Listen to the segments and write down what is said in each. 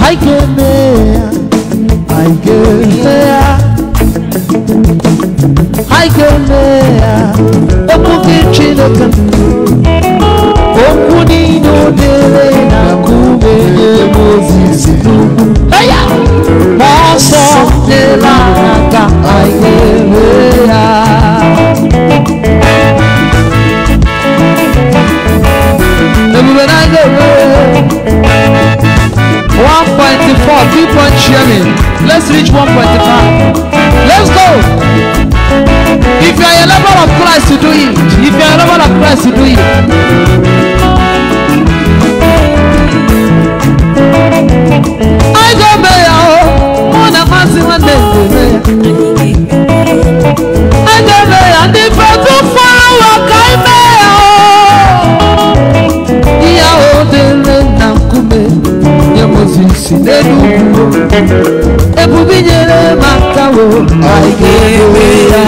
Haikemea, haikemea, haikemea, omuge Chineke okwu niile o dere na kumenye m ozizi n'ugwu ma ọsọ dịla n'aka haikemea 1.4 keep on sharing let's reach 1.5 let's go if you are a lover of Christ to do it if you are a lover of Christ to do it nenu ebubinye maka wo ayewe ya.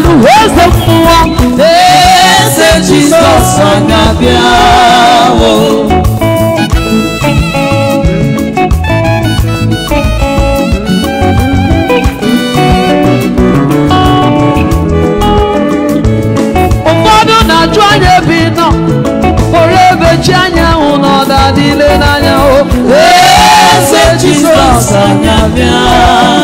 ìyanu eze fún wọn. eze jesus ọ̀nà bíáwó. ụfọdụ na-ajụ anya ebe ị nọ pụrụ ebe chi anyanwụ na ọda dịle n'anya o eze jesus ọ̀nà bíáwó.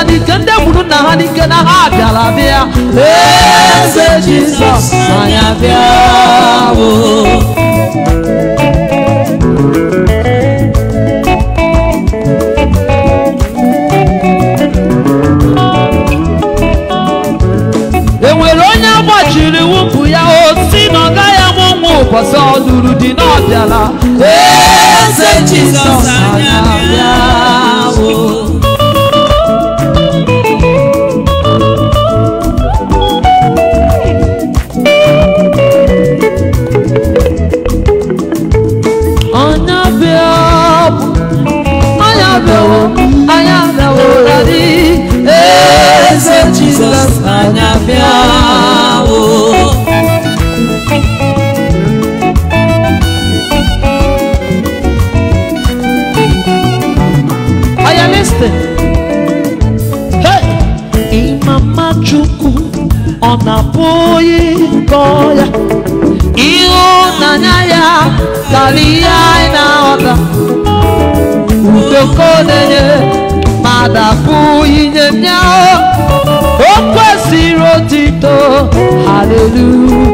ha n'ike ndị gburu na ha n'ike na ha bịara bịa eze jizọs anya bịa bụ enwere onye agbachiri wụpụ ya osi na ọ gaghị amụ ụbọchị ọdụrụ dị n'ọbịala eze jizọs anya nyanya kalia inaota utokonenye madafu inye myao okwesiri otito haleluya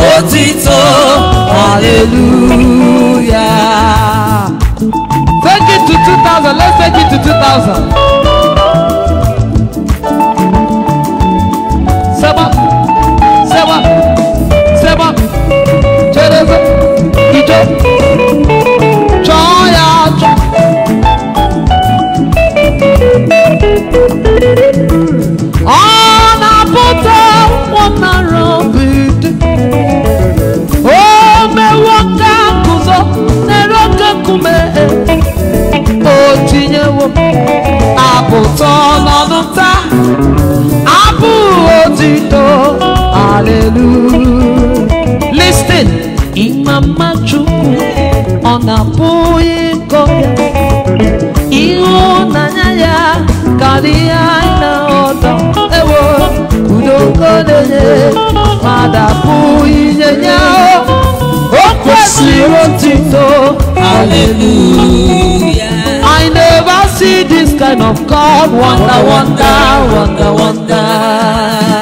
ó ti tó hallelujah. take it to two thousand let's take it to two thousand. sẹ́wọ́n sẹ́wọ́n sẹ́wọ́n jẹ́rẹ́sẹ́ ìjọ. napój ịhụnanya ya karịa na ọtọ ewo udokodenye ma dapụ inye ya o kwesịrị otito hallelujah I never see this kind of God wonder wonder wonder wonder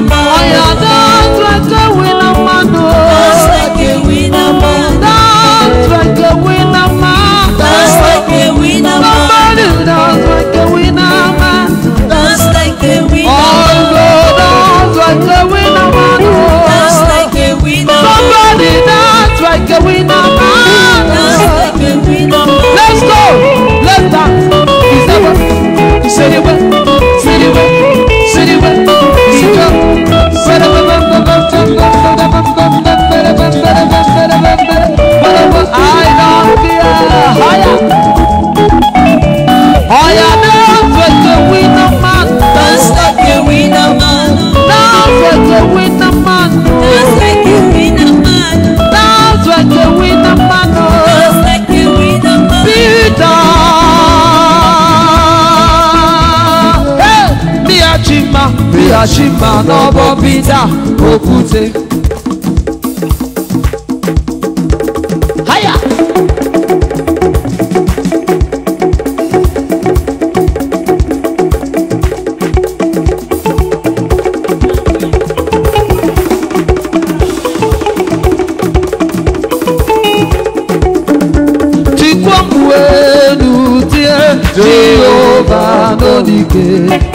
mama. Yashima n'ọbọ Pita Okwute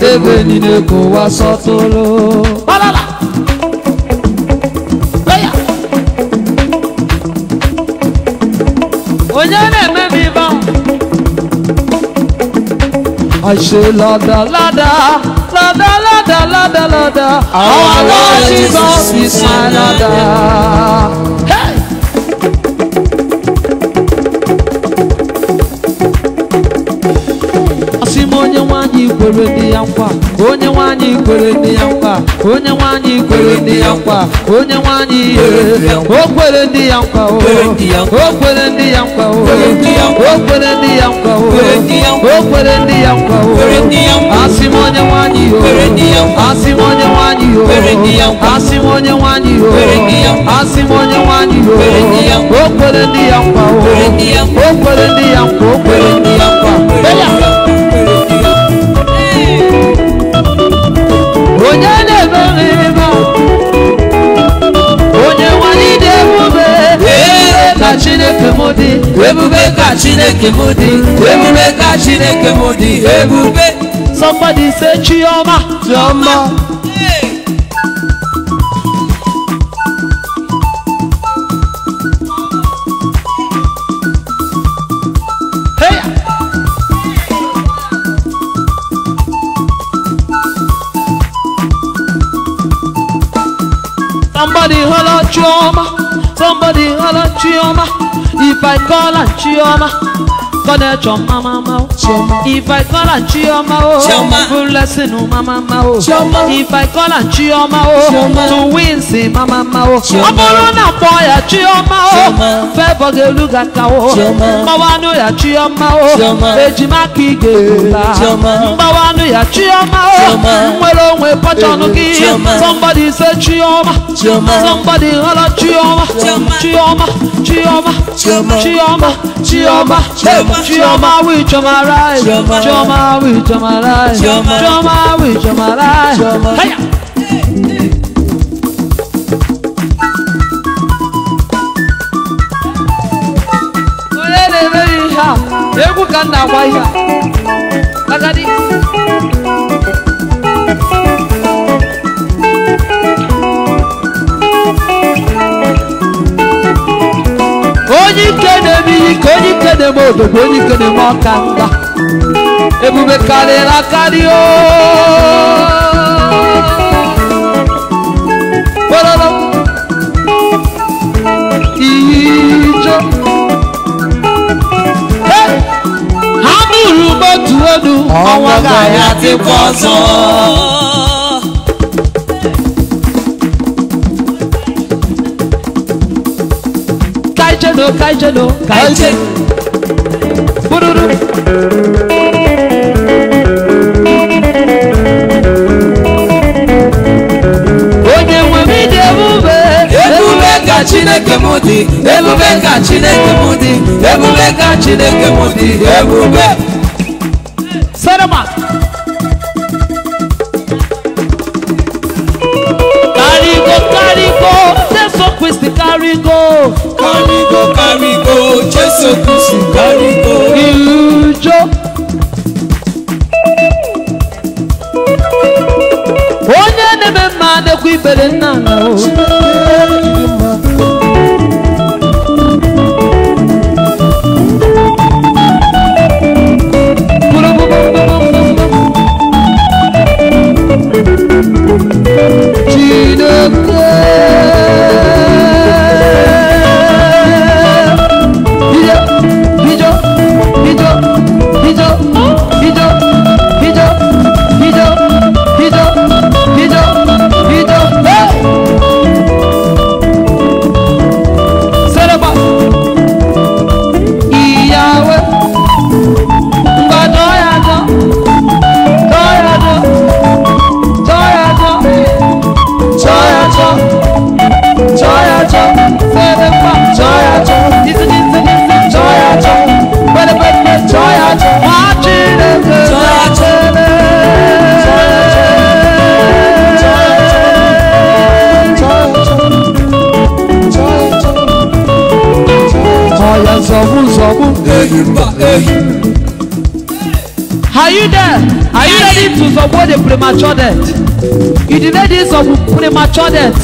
tẹ́lẹ̀ nílé kò wá sọ́tún ló. bọ́lọ́lá. lọ́yà. òye lè mẹ́mi bá. àṣe lọ́dà lọ́dà lọ́dà lọ́dà lọ́dà lọ́dà àwọn aláṣìṣọ́ sísan lọ́dà. onye nwanyị kwere nne ya nkwa onye nwanyị kwere nne ya nkwa onye nwanyị kwere nne ya nkwa onye nwanyị o kwere nne ya nkwa o kwere nne ya nkwa o kwere nne ya nkwa o kwere nne ya nkwa o asị m onye nwanyị o asị m onye nwanyị o asị m onye nwanyị o asị m onye nwanyị o o kwere nne ya nkwa o kwere nne ya nkwa o kwere nne ya ebube ka chineke m dị ebube ka chineke m dị ebube somebody say chioma chioma Chioma, somebody holler Chioma. If I call her Chioma, Kọ́dẹ̀ jọ máma ma o. Ìfà ìkọ́là ń jí ọmọ o. Fúlẹ́sìnù máma ma o. Ìfà ìkọ́là ń jí ọmọ o. Tùwíǹsì máma ma o. Ọbụrụ na pọ ya jí ọmọ o. Fẹ́ bọ̀gẹ̀ olúga ka o. Mgbawanụ ya jí ọmọ o. Ejima ka ị ga-ebula. Mgbawanụ ya jí ọmọ o. Nwere onwe pọchọnụ gị. Somebody say Chioma. Somebody holla Chioma. Chioma. Chioma. Chioma. Chioma. Chioma. Chioma with Chioma right. Chioma with Chioma right. Chioma with Chioma right. Hiya. egwu ka m na-agwa ihe agadi onye ikene m iyi ka onye ikene m obodo ebube karịrị akarị ijo ha nụrụ m otu olu Kaijelo, Kaijelo, Kaijelo. Bururu. Onye nwe m iji ebube. Ebube ka Chineke m dị. Ebube ka Chineke m dị. Ebube ka Chineke m dị. Ebube. Sarama. Carigo, carigo, Seso Christi, carigo. Carry go, carry go, Jésù Kristi carry go. Ìjọ. Onye na-eme mma adekwa ibere nna na o. Are you there? Are you ready to support the premature death? You delay this of premature death.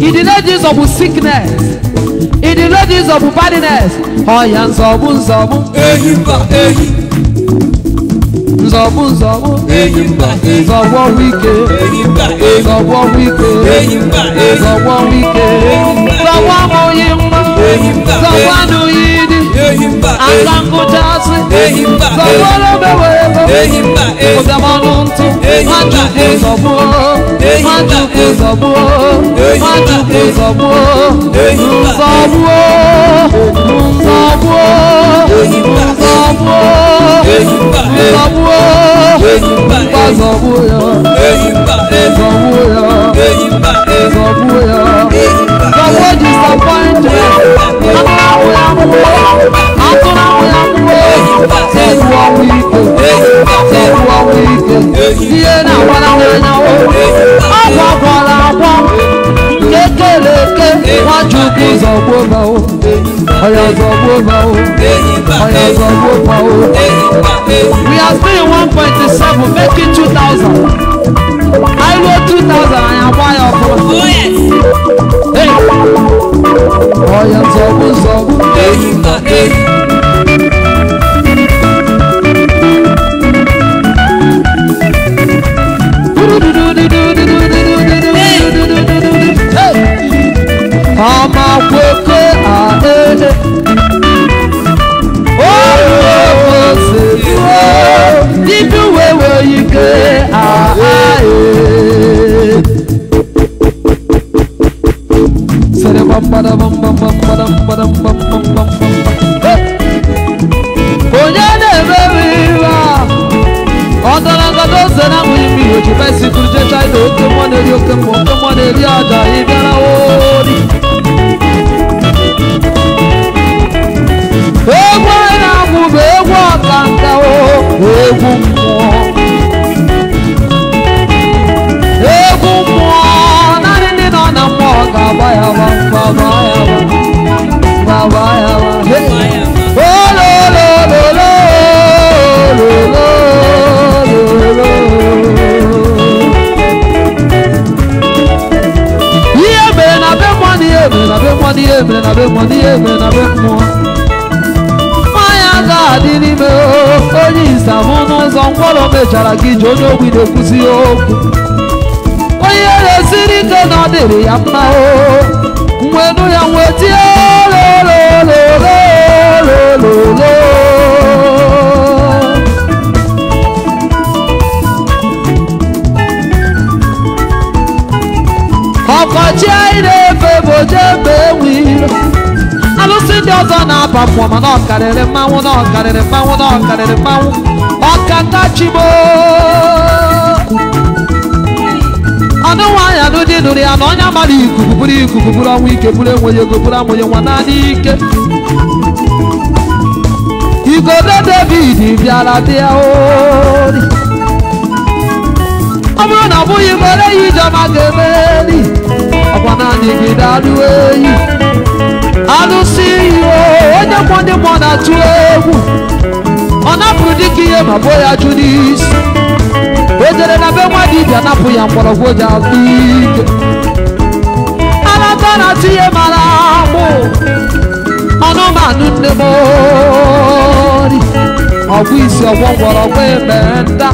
You delay this of sickness. You delay this of badness. Oh, yeah, nzọ̀bù nzọ̀bù. Ehi mba ehi. Nzọ̀bù nzọ̀bù. Ehi mba ehi. Nzọ̀bù ọrụ ike. Ehi mba ehi. Nzọ̀bù ọrụ ike. Ehi mba ehi. Nzọ̀bù ọrụ ike. Nzọ̀bù amụghị mma. Ehi ehi. Nzọ̀bù anụghị azangu jazi sọgbọlọ bẹwẹ ẹgbẹ ọdẹmọnu ntí májùkú sọgbọ májùkú sọgbọ májùkú sọgbọ nsọgbọ nsọgbọ nsọgbọ nsọgbọ nsọgbọ yọ nsọgbọ yọ nsọgbọ yọ. ọ̀yọ̀gọ̀ owó pọ̀ o. we are still in one point seven make two thousand. I wrote two thousand and I buy your phone. Oh yes. Hey. Ọ̀yọ̀ sọ̀bù sọ̀bù. good. nkwọrọ mechara gị ji onye ogbi na-ekwuzi okwu onye na ike na ọ ya mma o nwenu ya nwee tie lololololololo ọkọchị anyị na-efe bụ oje mgbe enwe iro alụsị ndị ọzọ na-aba mmụọ ma na ọkarịrị mmanwụ na ọkarịrị mmanwụ na ọkarịrị mmanwụ akachigbo ọdụ nwaanyị alụdị nụrụ ya na onye mara ikuku bụrụ ikuku bụrụ ọnwa ike bụrụ enweghị ego bụrụ amụghị nwa naanị ike igodo david bịara dị ya ori ọ bụrụ na ọ bụghị mere ya ijeọma ga-emeri ọkwa naanị gị dalụ eyi alụsị ihe onye kwụ ndị mmụọ na-atụ egwu anapụrụ dịka ihe ma bụ ya jụ o jere na be nwa dibịa napụ ya mgbọrọgwụ ji azụ ike alata na tinye mara mụ ọnụmanụ nne m ori ọgwụ isi ọgwọ mgbọrọgwụ eme nda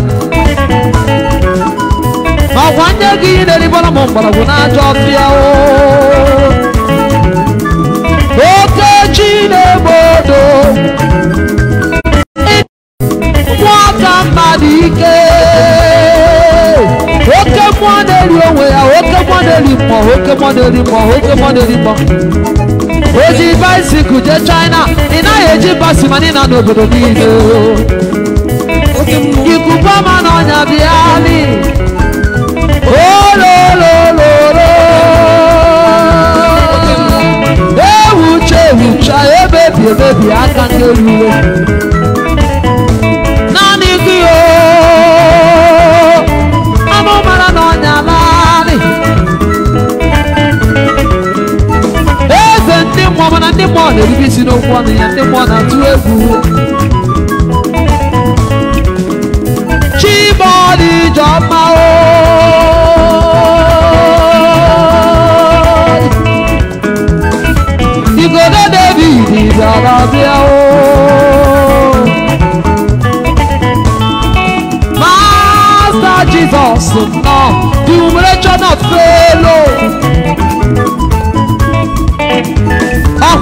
ma ọgwa ndị gị na-eribara m mgbọrọgwụ na-ajọ ọfịa oke chi na-egbodo ike oke mọdeli onwe ya oke mọdeli mkpọ oke mọdeli mkpọ oke mọdeli mkpọ oji baisikụl jee China ị naghị eji basi mana ị na n'obodo niile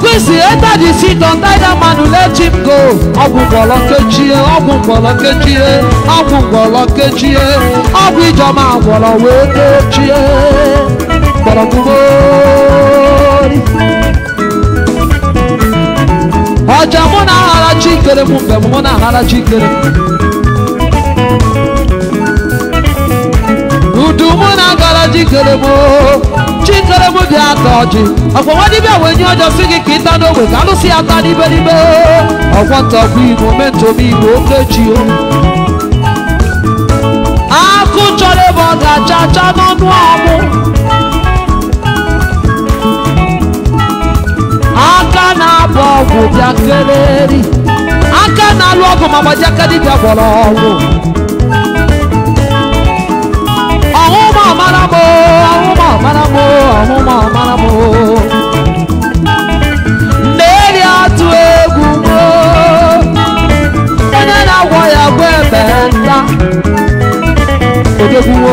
kwesị ebe dị sit on dina manu let him go ọgwụ mgbọrọ kechie ọgwụ mgbọrọ kechie ọgwụ mgbọrọ kechie ọgwụ ijeọma gwọrọ wee kechie gbọrọgbugori ọja mụ na aghara chikere m mgbe mụ na aghara chikere udu mụ na agara chikere m chikorobu dị ata ọjị ọkwọnwa dibịa wee nye ọjọ si gị ka ịta n'ogbe ka alụsị ya ata n'iberibe ọkwọ ntakwu igbo mentom igbo okechi o akụ chọrọ ebe ọ ga-acha acha n'ọnụ ọmụ aka na-abụ ọgwụ bịa kereri aka na-alụ ọgwụ ma gbaji aka dibịa gwọrọ ọgwụ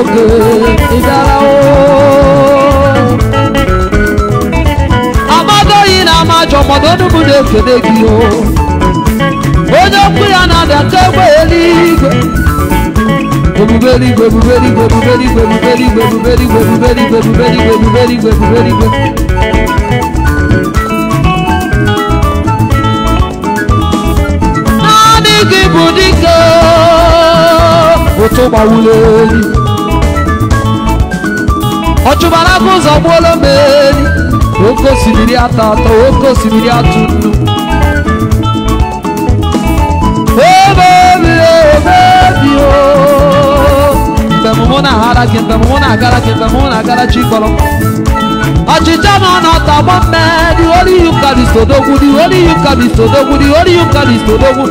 ògè ìdára o. Amadoyi na amajọ Onye okwu ya na-adata egbe eluigwe. Ebube eluigwe, ebube eluigwe, ebube eluigwe, ebube eluigwe, ebube eluigwe, gị bụ dike ụtụ gbawụlụ elu ọchụbara ụzọ gbuola meri oke osimiri atọ atọ oke osimiri atụ nnu mgbe na-agara gị mgbe mụ na-agara gị mgbe mụ na-agara chi kpọrọ ọchịcha nọ n'ọtọ gbọ mme dị olu ihe ụka dị sodogwu dị olu ihe ụka dị sodogwu dị olu ihe ụka dị sodogwu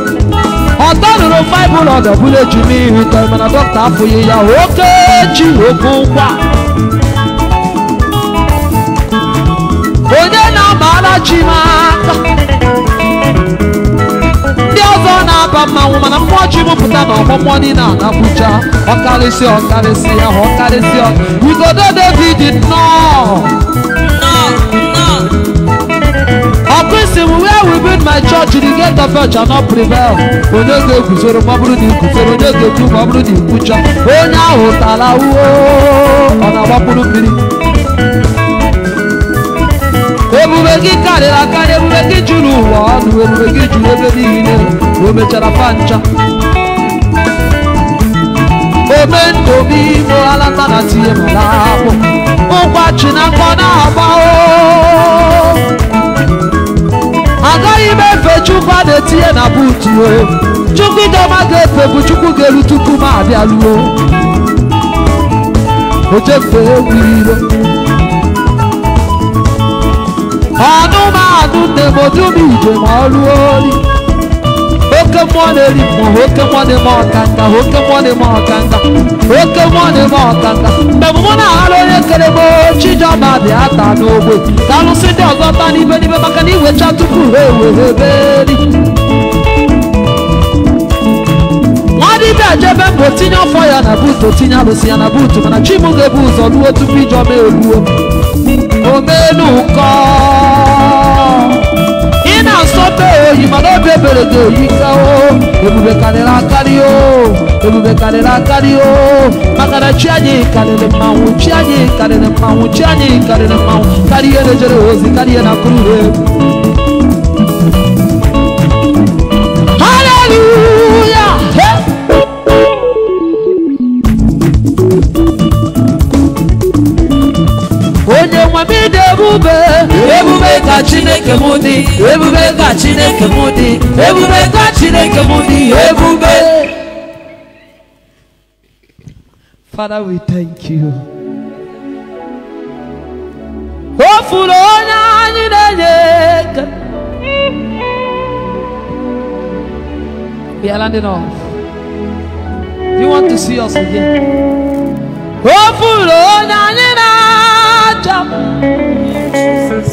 ọtọ rụrụ faịbụl ọdọ bụrụ eju n'ihu tọ mana dọkịta afụghị ya oke chi oke ụkwa na-achị m aka ndị ọzọ na-aba mmanwụ mana mmụọ ji mụpụta na ọgbọmmụọ niile a na-abụja ọkarịsị ọkarịsị ahụ ọkarịsị igodo david nnọọ ọkụisi m where we build my church the gate of hell shall not prevail onye ga-eguzoro ma ọ bụrụ na iguzoro onye ga-ekwu ma ọ bụrụ na ikwucha onye ahụ tara uo ọ na-agbapụrụ mmiri karịrị akarị ebube gị juru ụwa ọnụ ebube gị juru ebe niile na o mechara pancha omendobi igbo alata na tinye mara akpụ ụkwachi na mkpọ na-agba agaghị m efe chukwu a na-etinye na buutu chukwu idoma ga-efe bụ chukwu ga-eru tupu m abịaruo ojefe egwu iro anụmanụ ndemodubi ije ma ọ rụọ ori oke mmụọ na-eri mmụọ oke mmụọ na-eme ọkanga oke mmụọ na-eme ọkanga oke mmụọ na-eme ọkanga mgbe mụ na-aghara onye kere m chijọba dị ata n'ogbe ka alụsị ndị ọzọ ta n'ibe n'ibe maka na iwecha tupu ha ewere eberi be jebe mbụ tinye ọfọ ya na buutu tinye alụsị ya na buutu mana m ga-ebu ụzọ ruo tupu ijọma egbuo melu kọ ị na-asọbe oyi mana obi ebere ga-eyi kao ebube karịrị akarị o ebube karịrị akarị o maka na chi anyị karịrị mmanwụ chi anyị karịrị mmanwụ chi anyị karịrị mmanwụ karịa ejere ozi karịa na kuru ebube ka chineke mụ dị ebube ka chineke mụ dị ebube ka chineke mụ dị ebube father we thank you o furu onye anyị na-enye ego we are landing off do you want to see us again o furu onye anyị na-achọ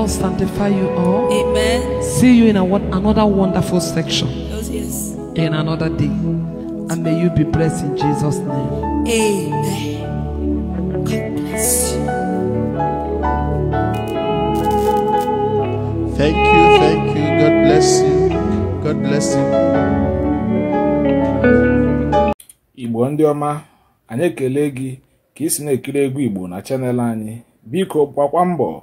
Lord sanctify you all. Amen. See you in a, another wonderful section. Oh, yes. In another day. And may you be blessed in Jesus' name. Amen. God bless you. Thank you, thank you. God bless you. God bless you. Igbo ndị ọma, anyị ekele gị ka ị si na-ekiri egwu Igbo na chanel anyị. Biko gbakwa mbọ